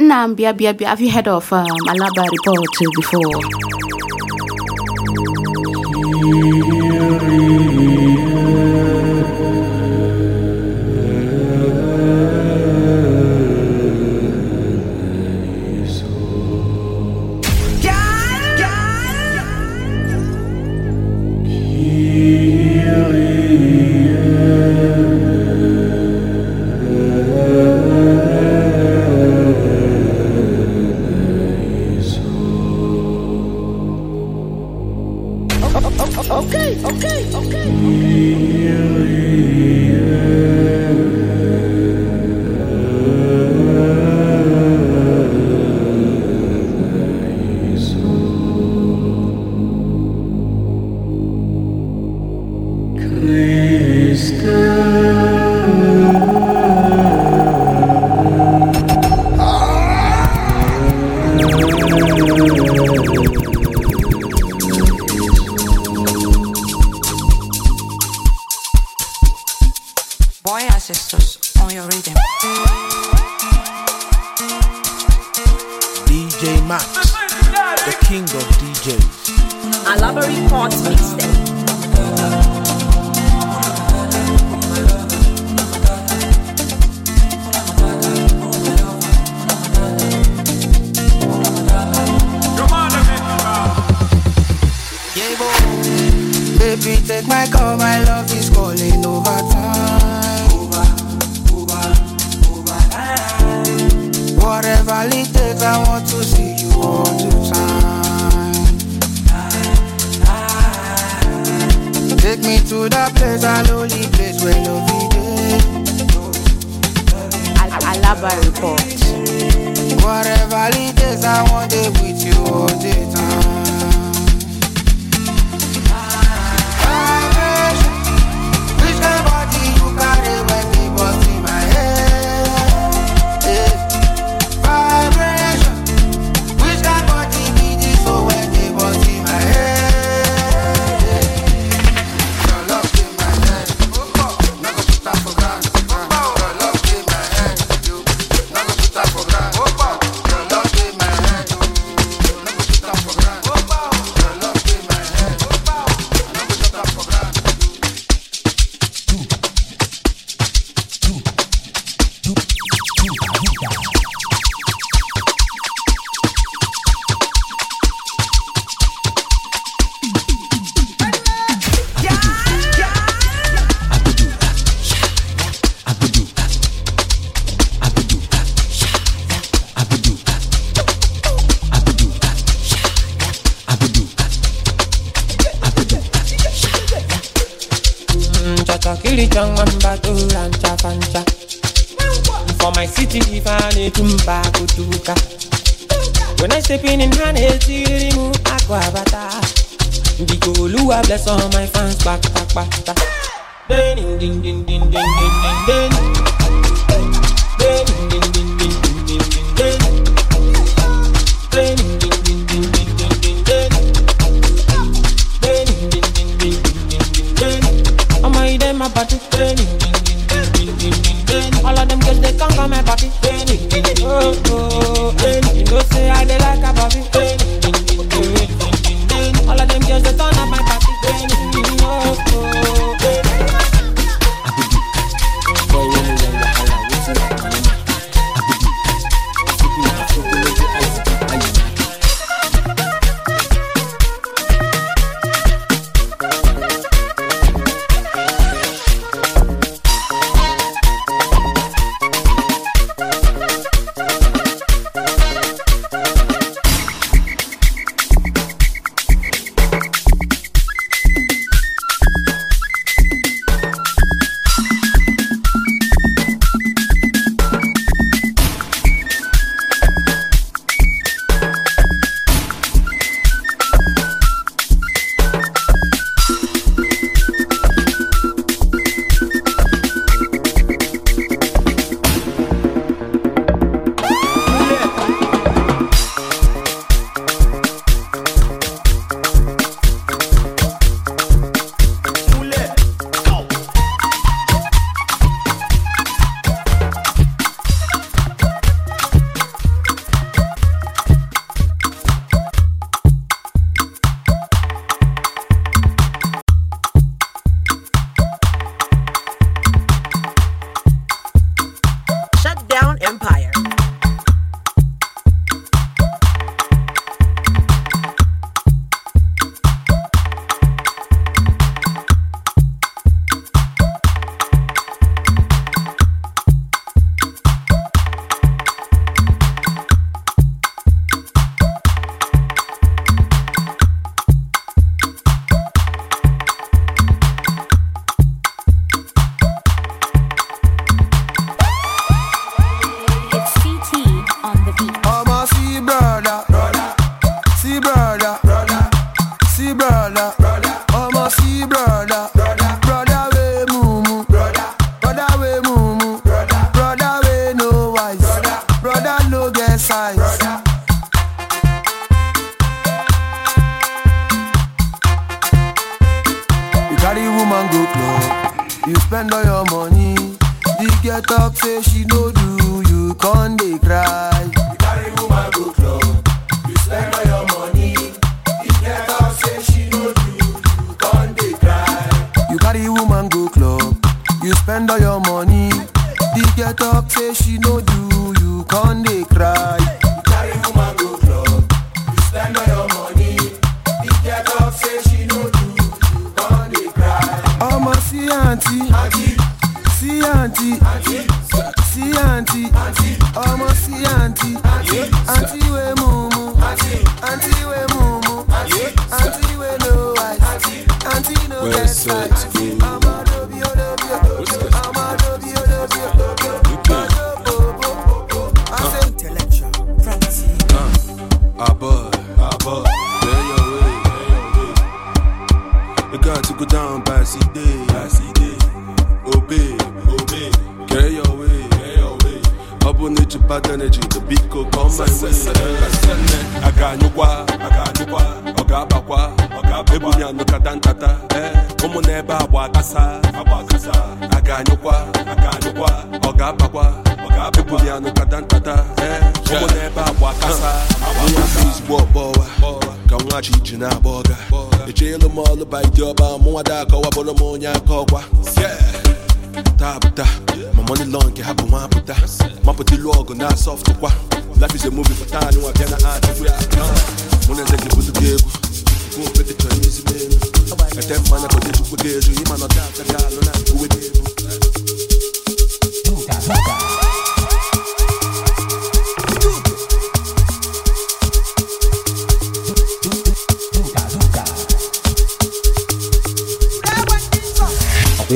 Nambia, Bia, Bia, have you heard of um, Alaba report before? Chilichang, Mamba, Rancha, Pancha. For my city, if I need When I step in in Hane, Lua, bless all my fans, back, back, back, back. Ding, ding, ding, ding, ding, ding, ding, ding. Ding, ding, ding, ding. party. All of them girls they come come my party. Oh oh, you know say I they like a a ga-anyụkwa ọ ga-abakwa ebuli anụ kata nkata ụmụ na-ebe agba kasa ozugbo uh. ọbọwa ka nwachi iji na-agba ọga echeelu m ọlụ baidi ọba ọmụ da akọwabụrụ m onye aka ọkwa taa apụta ma money law nke ha bụ nwa apụta mapụta ilu ọgụ na asọftụkwa life is a movie for taa na adịbụ ya mụ na eze gị bụtụ gị egwu nke okpete chọrọ ihe elu ete mmanya kọta echukwu gị ezu ịma nọta aka alụ na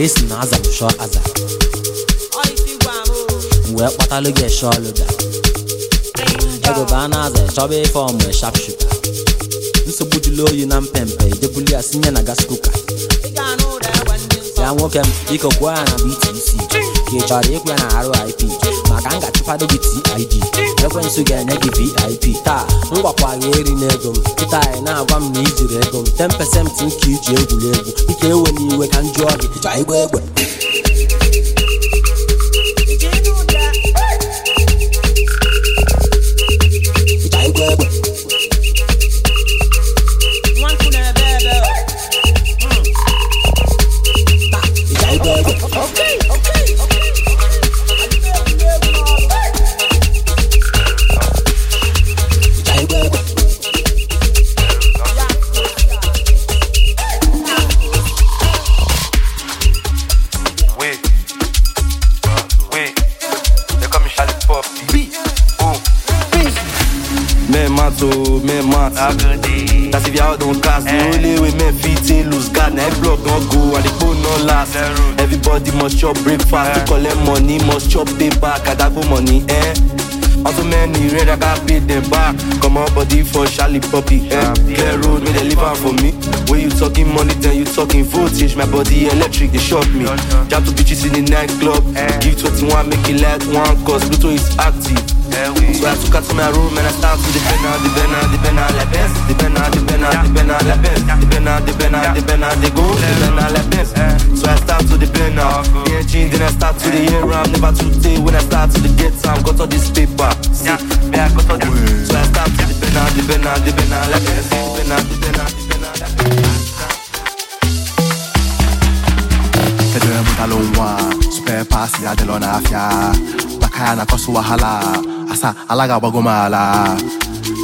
esi na aza m e e aza wee kpatara gị eshọ lụda egbe a na-aza ịchọba ife ọmụ e shap nsogbu jụlụ oyi na mpempe idebuli ya sinye na gas kuka ya nwoke m biko ya na BTC; ka ị chọrọ ikwe na arụ ip ga-achụfado gị TID ekwensụ ga-enye gị VIP taa mgbakwunye gwakwara eri na m kịta anyị na-agwa m na ijiri ego m 10 nke iji egwuregwu ike ewe n'iwe ka m jụọ gị ịchọ igba egbe so men mat That's if y'all don't cast The only way men fit in loose guard Now every block don't go and the phone last Everybody must chop breakfast eh. To collect money must chop pay back I got money eh Also many red I got pay them back Come on body for Charlie Puppy eh Clear road wey they leave out for me When you talking money then you talking voltage My body electric they shock me jam to bitches in the nightclub eh. Give 21 make it like one cause Pluto is active Eh oui. So I took her to my room and I start to the Benna, the Benna, la Benz, the Benna, the Benna, the Benna, la Benz, the Benna, the Benna, the Benna, the go, the Benna, la Benz. So I start to the Benna, the engine, then I start to the air I'm Never too day when I start to the get time, got all this paper. See, yeah, got all this. So I start to the Benna, the la la super pasi afya na asa ala ga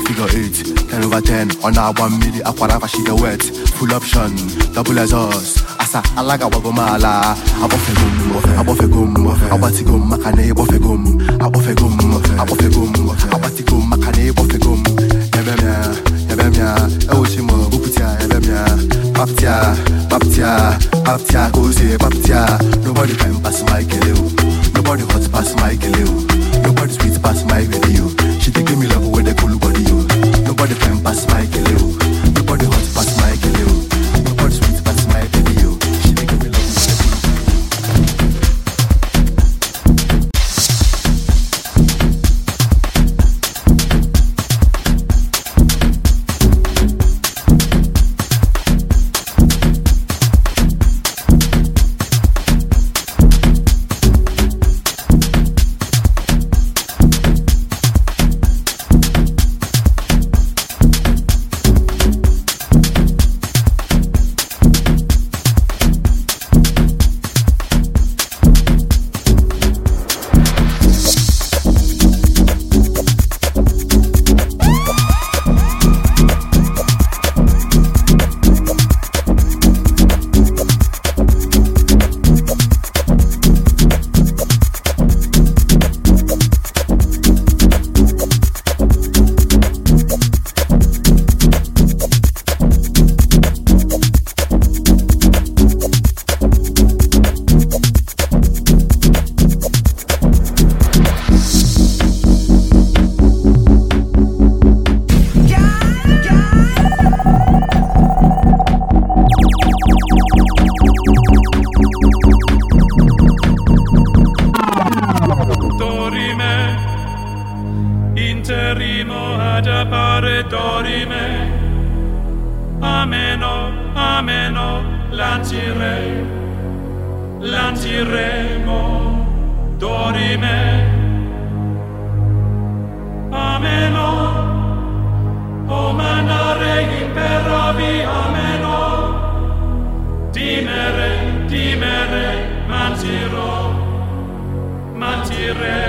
figure 8 10 over 10 ọ na-agba mmiri akwara fashiga wet full option double exhaust asa ala ga-agbago m ala agbọfego m agbọfego m agbatigo m maka na ịgbọfego m agbọfego m agbọfego m agbatigo m maka na ịgbọfego m ebemya ebemya ewochi m ebemya paptia paptia paptia ka o si paptia nobody can pass my kele nobody hot pass my kele o nobody sweet pass my baby o she dey give me love wey dey cool body o nobody fine pass my kele o. Spirit.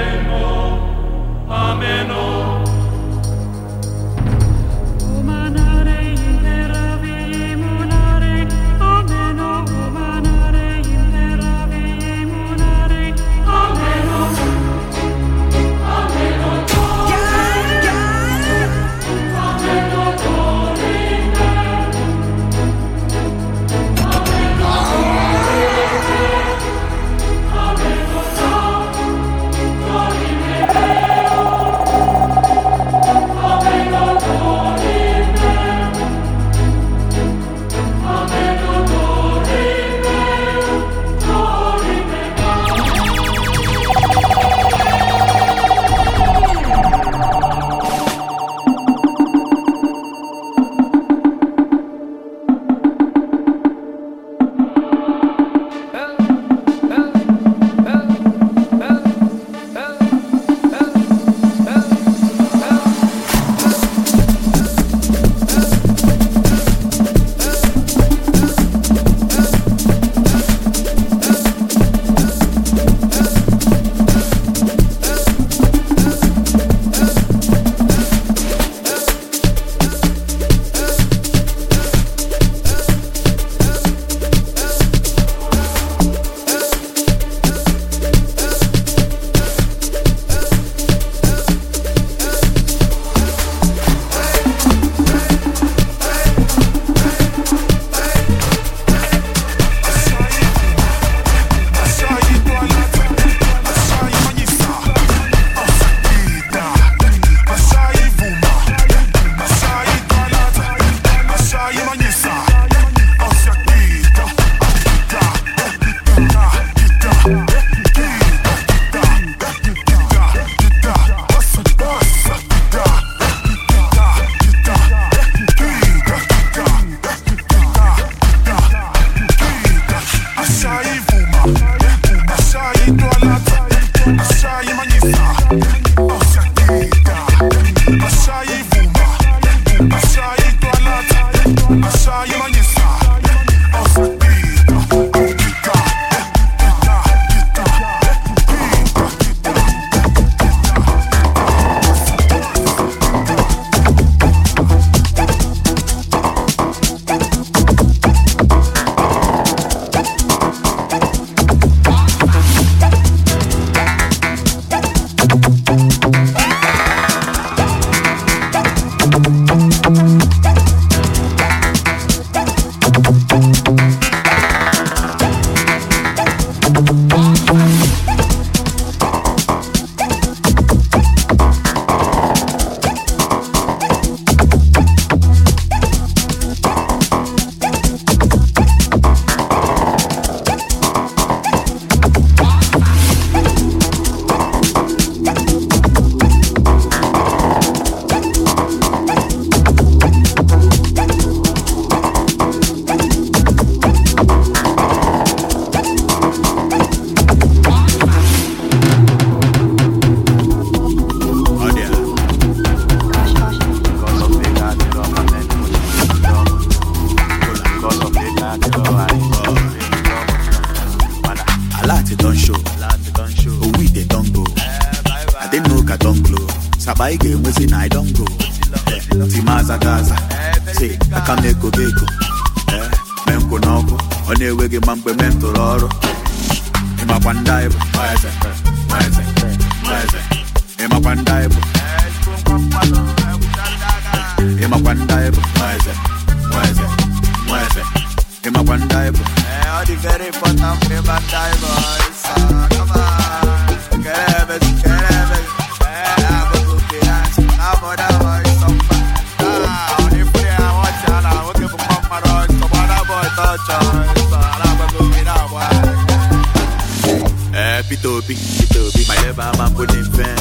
Chipobi, Chipobi, my leva ma pou den ven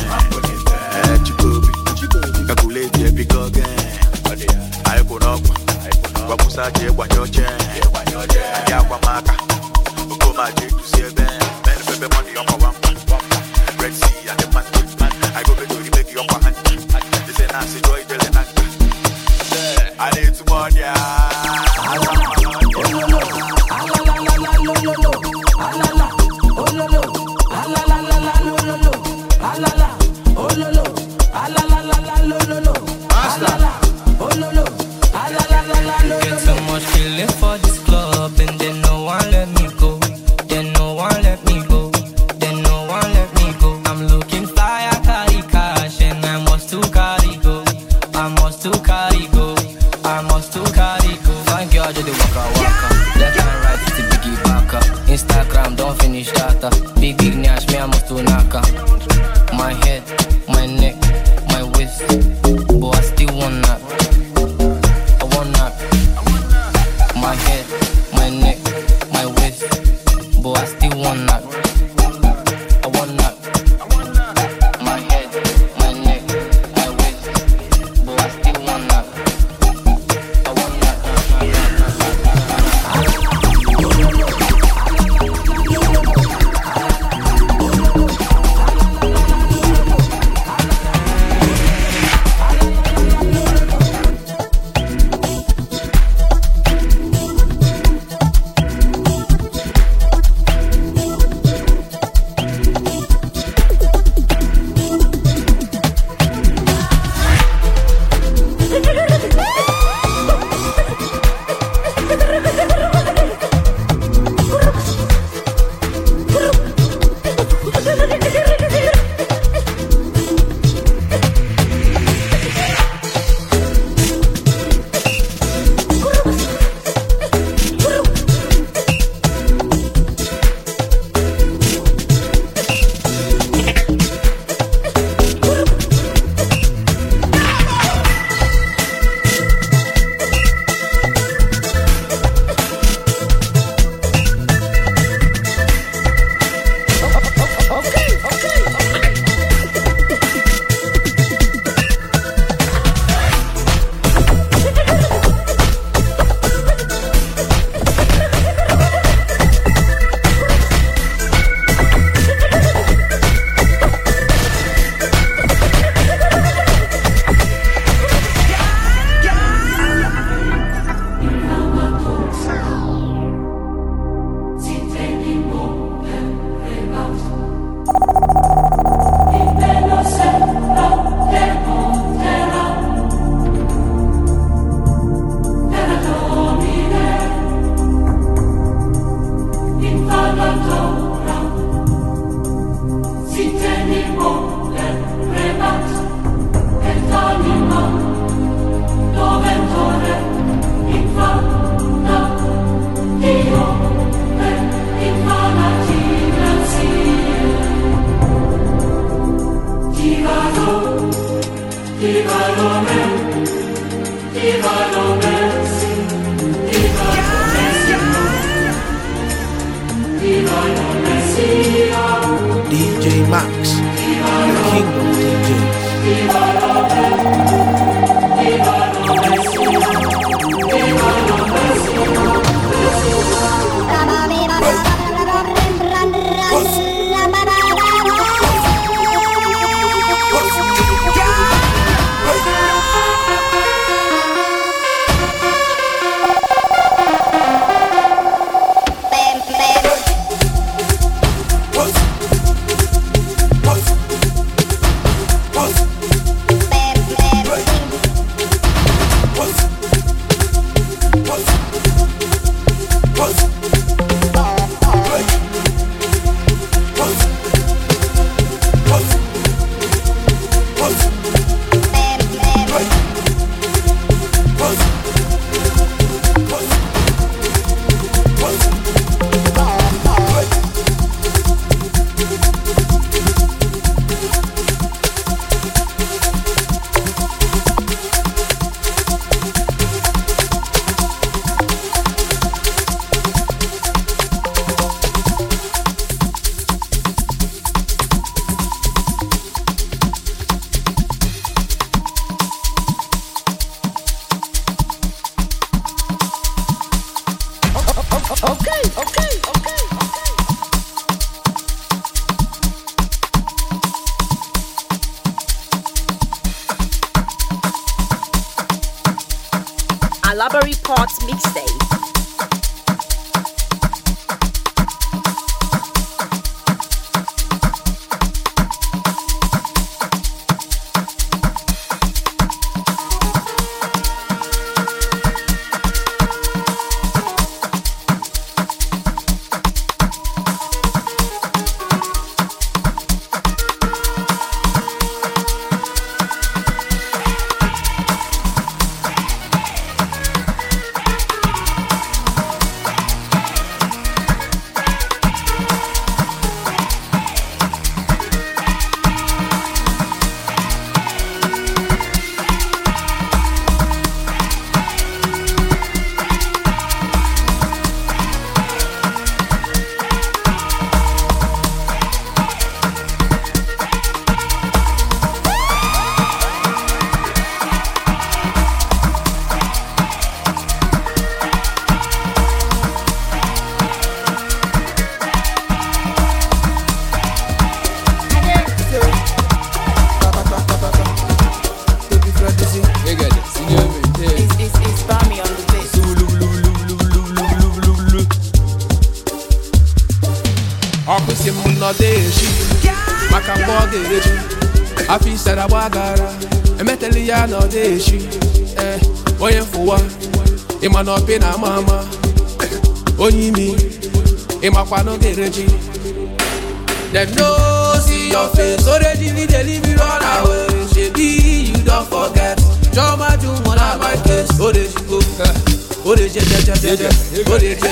Eh, Chipobi, kakule te maka,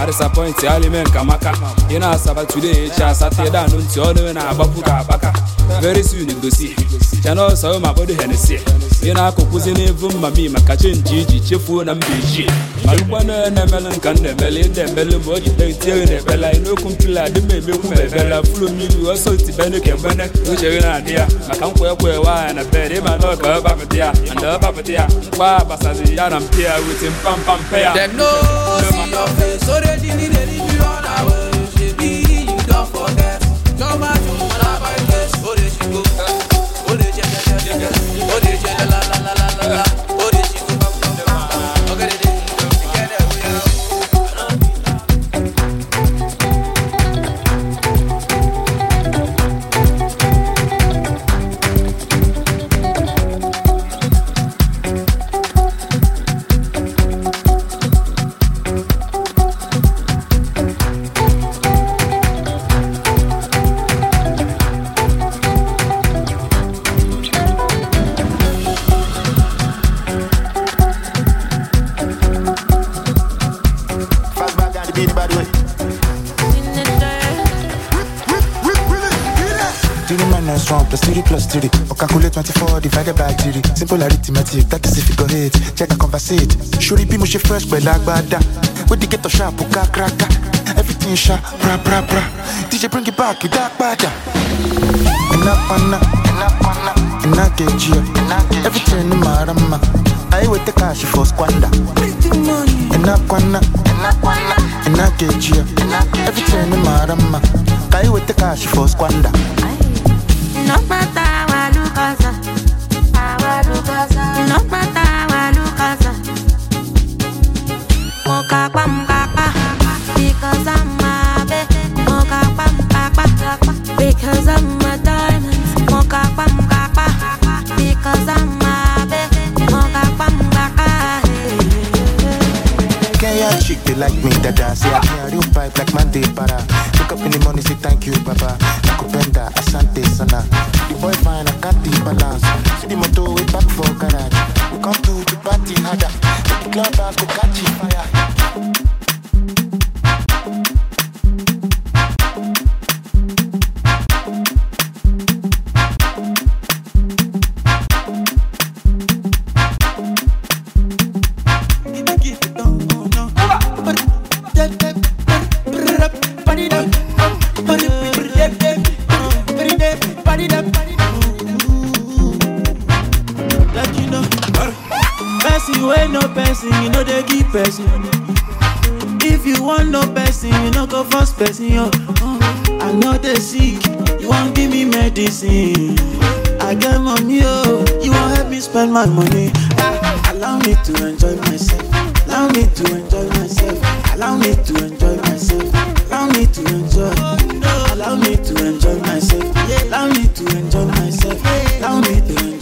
arịsapọintị alimeka maka ị na-asaba today echi asatọ dan ntị ọnụ na-agbapụ ka akpaka very soon gosi chanel sao ma kpodo henesi ị na-akụkwụzi n'evu mmami maka chenji iji chefuo na mba ejii malụkwana na-emele nka m na-emele ịda emele ma o jide na ebela n'okwu mpili adị m emekwu ma ebela furu mmiri ọsọ tibene na adị ya maka nkwa ekwe na bed ịma na ọka ya na ọbapụta ya na mpi ya wete mpampampe go. it, that is if you go hit. Check I converse it. Surely be mushy fresh, but like bada. With the ghetto sharp, puka oh, kraka. Everything sharp, bra bra bra. DJ bring it back, you dark bada. Enough on that, enough on that. And I get you, everything in my rama. I will take cash for squander. Enough on that, enough on that. And I get you, everything in my rama. I will take cash for squander. No matter what, look us up. Our look us up. Não matar chick they like me dada say i carry real pipe like man dey para wake up in the money say thank you baba nakupenda asante sana the boy fine i can't dey balance see the motor wey back for garage we come to the party harder the club house go catch fire person, you know they give person. If you want no person, you know go first person. Yo. I know they sick, you won't give me medicine. I get money, oh, you won't help me spend my money. Ah, allow me to enjoy myself. Allow me to enjoy myself. Allow me to enjoy myself. Allow me to enjoy. Allow me to enjoy myself. Allow me to enjoy myself. Allow me to enjoy.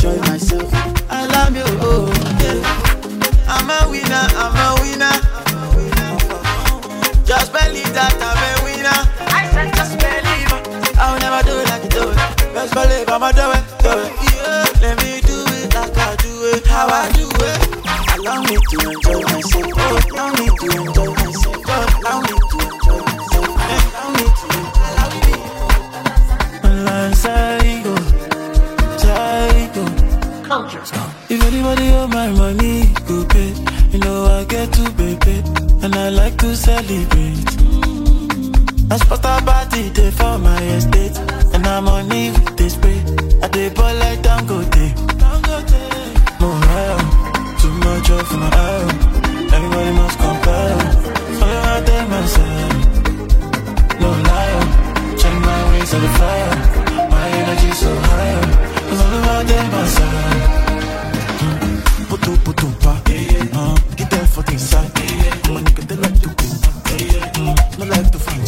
Believe I'ma do it, do it. Yeah, let me do it like I do it, how I do it. Allow me to enjoy myself. Allow me to enjoy myself. Allow me to enjoy myself. Allow me to allow me. If anybody owe my money, go pay. You know I get to pay, and I like to celebrate. I spot a body day for my estate. And I'm on leave this way. I dey ball like Dangote. Morale, too much of my arrow. Everybody must compare. Follow I tell myself. No lie, check my ways on the fire. My energy so high. Follow I tell myself. Puto puto pa, uh, get there for the side. My nigga they like to go, no uh, uh, uh, like to find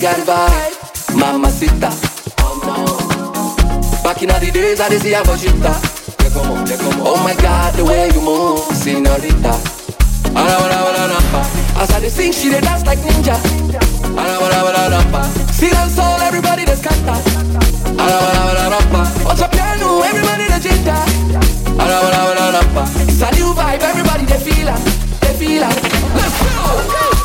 got vibe, mamacita. Back in the days, I didn't see a vagita. Oh my God, the way you move, senorita. As I sing, she dey dance like ninja. See them soul, everybody that's canta. Ara ara ara piano, everybody that's It's a new vibe, everybody dey feel it, they Let's go.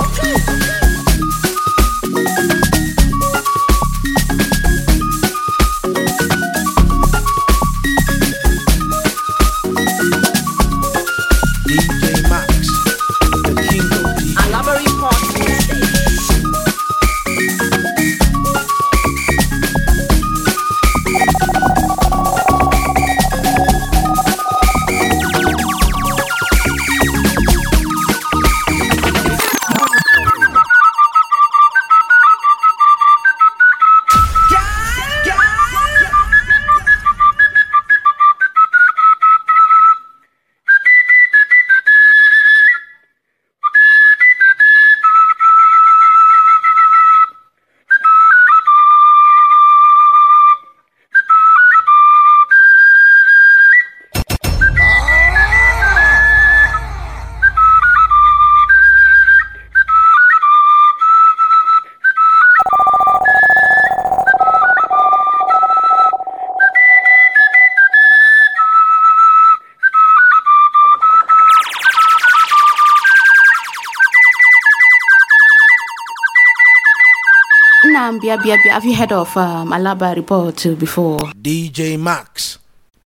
Um, Bia Bia Bia, have you heard of um, Alaba report before? DJ Max,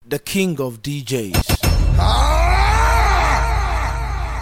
the king of DJs. Ah!